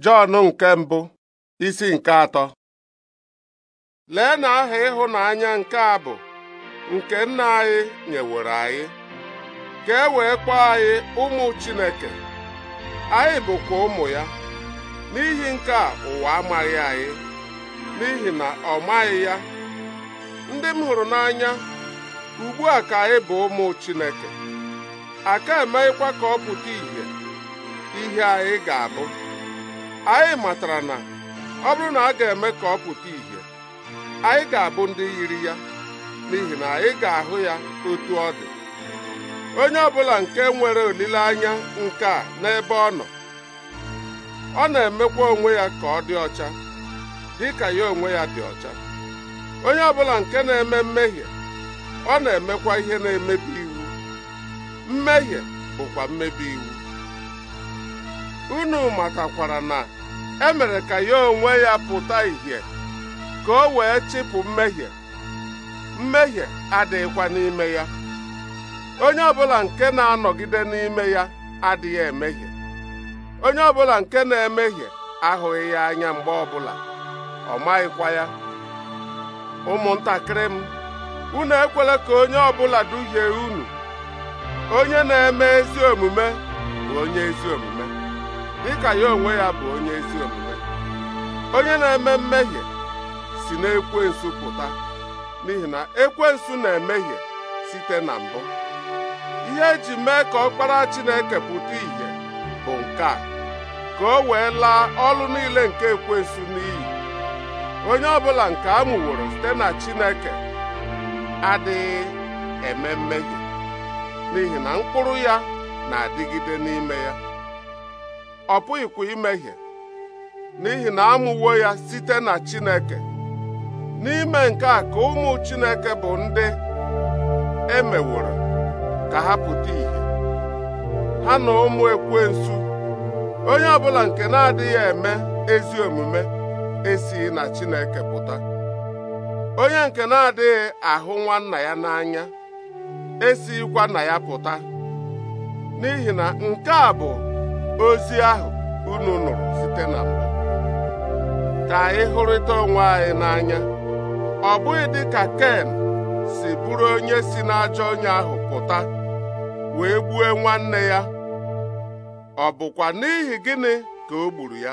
Jọn nke mbụ isi nke atọ lee na aha ịhụnanya nke a bụ nke nna anyị nyeworo anyị ka e wee kpọọ anyị ụmụ Chineke anyị bụkwa ụmụ ya n'ihi nke a ụwa amaghị anyị n'ihi na ọ maghị ya ndị m hụrụ n'anya ugbu a ka anyị bụ ụmụ Chineke aka emeghịkwa ka ọ pụta ìhè ihe anyị ga-abụ anyị matara na ọ bụrụ na a ga-eme ka ọ pụta ìhè anyị ga-abụ ndị yiri ya n'ihi na anyị ga-ahụ ya otu ọ dị onye ọbụla nke nwere olileanya nke a n'ebe ọ nọ ọ na-emekwa onwe ya ka ọ dị ọcha dị ka ya onwe ya dị ọcha onye ọbụla nke na-eme mmehie ọ na-emekwa ihe na-emebi iwu mmehie bụkwa mmebi iwu unu matakwara na emere ka ya onwe ya pụta ìhè ka o wee chịpụ mmehie mmehie adịghịkwa n'ime ya onye ọbụla nke na-anọgide n'ime ya adịghị emehie onye ọbụla nke na-emehie ahụghị ya anya mgbe ọbụla ọ maghịkwa ya ụmụntakịrị m unu ekwela ka onye ọbụla duhie unu onye na-eme ezi omume bụ onye ezi omume dịka ya onwe ya bụ onye ezi omume onye na-eme mmehie si na pụta n'ihi na ekwensu na-emehie site na mbụ ihe eji mee ka ọkpara Chineke pụta ìhè bụ nke a ka o wee laa ọlụ niile nke ekwensu n'iyi onye ọbụla nke a mụworo site na Chineke adịghị eme mmehie n'ihi na mkpụrụ ya na-adịgide n'ime ya ọ pụghịkwa imehie n'ihi na amụwo ya site na Chineke n'ime nke a ka ụmụ Chineke bụ ndị e meworo ka ha pụta ìhè ha na ụmụ ekwensu onye ọbụla nke na-adịghị eme ezi omume esighị na Chineke pụta onye nke na-adịghị ahụ nwanna ya n'anya esighịkwa na ya pụta n'ihi na nke a bụ ozi ahụ unu nụrụ site na mbụ ka anyị hụrịta onwe anyị n'anya ọ bụghị dị ka Ken si bụrụ onye si n'ajọ onye ahụ pụta wee gbuo nwanne ya ọ bụkwa n'ihi gịnị ka o gburu ya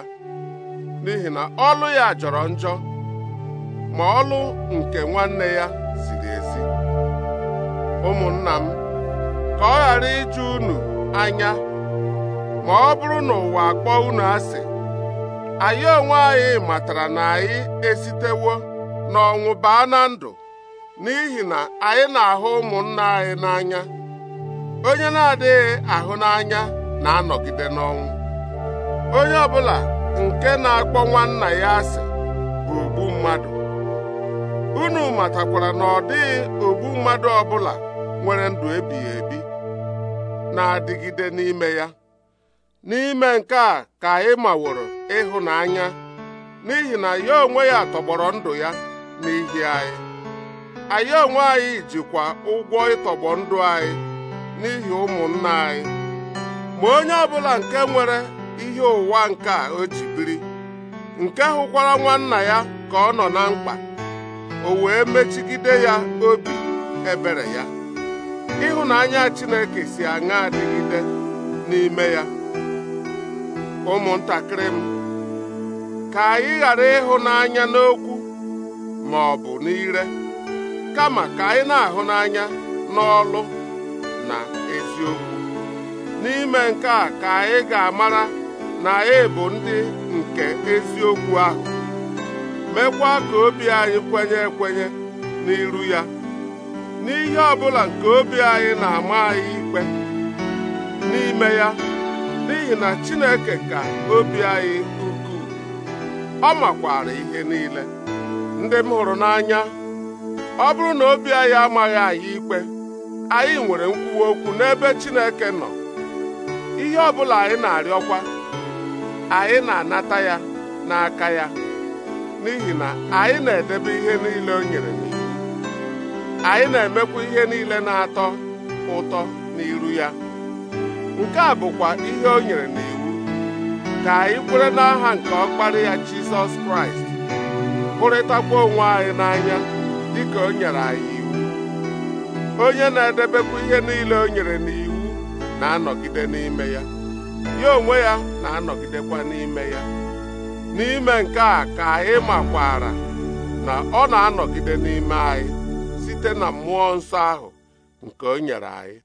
n'ihi na ọlụ ya jọrọ njọ ma ọlụ nke nwanne ya ziri ezi ụmụnna m ka ọ ghara iju unu anya ma ọ bụrụ na ụwa akpọ unu asị anyị onwe anyị matara na anyị esitewo n'ọnwụ baa na ndụ n'ihi na anyị na-ahụ ụmụnna anyị n'anya onye na-adịghị ahụ n'anya na-anọgide n'ọnwụ onye ọbụla nke na-akpọ nwanna ya asị bụ ogbu mmadụ unu matakwara na ọ dịghị ogbu mmadụ ọbụla nwere ndụ ebighị ebi na-adịgide n'ime ya n'ime nke a ka ị maworo ịhụnanya n'ihi na ya onwe ya tọgbọrọ ndụ ya n'ihi anyị anyị onwe anyị jikwa ụgwọ ịtọgbọ ndụ anyị n'ihi ụmụnna anyị ma onye ọbụla nke nwere ihe ụwa nke a o ji biri nke hụkwara nwanna ya ka ọ nọ na mkpa o wee mechigide ya obi ebere ya ịhụnanya Chineke si aṅa adịgide n'ime ya ụmụntakịrị m ka anyị ghara ịhụnanya n'okwu ma ọ bụ n'ire kama ka anyị na-ahụ n'anya n'ọlụ na eziokwu n'ime nke a ka anyị ga-amara na anyị e bụ ndị nke eziokwu ahụ mekwa ka obi anyị kwenye ekwenye n'iru ya n'ihe ọ bụla nke obi anyị na-ama anyị ikpe n'ime ya n'ihi na Chineke ka obi anyị ukwuu ọ makwara ihe niile ndị m hụrụ n'anya ọ bụrụ na obi anyị amaghị anyị ikpe anyị nwere nkwuwa okwu n'ebe Chineke nọ ihe ọ bụla anyị na-arịọkwa anyị na-anata ya n'aka ya n'ihi na anyị na-edebe ihe niile o nyere n'iwu anyị na-emekwa ihe niile na-atọ ụtọ n'iru ya nke a bụkwa ihe o nyere n'iwu ka anyị kwere n'aha nke ọkpara ya Jizọs Kraịst hụrịtakwa onwe anyị n'anya dịka o nyere anyị iwu onye na-edebekwa ihe niile o nyere n'iwu na-anọgide n'ime ya ya onwe ya na-anọgidekwa n'ime ya n'ime nke a ka anyị makwara na ọ na-anọgide n'ime anyị site na mmụọ nsọ ahụ nke o nyere anyị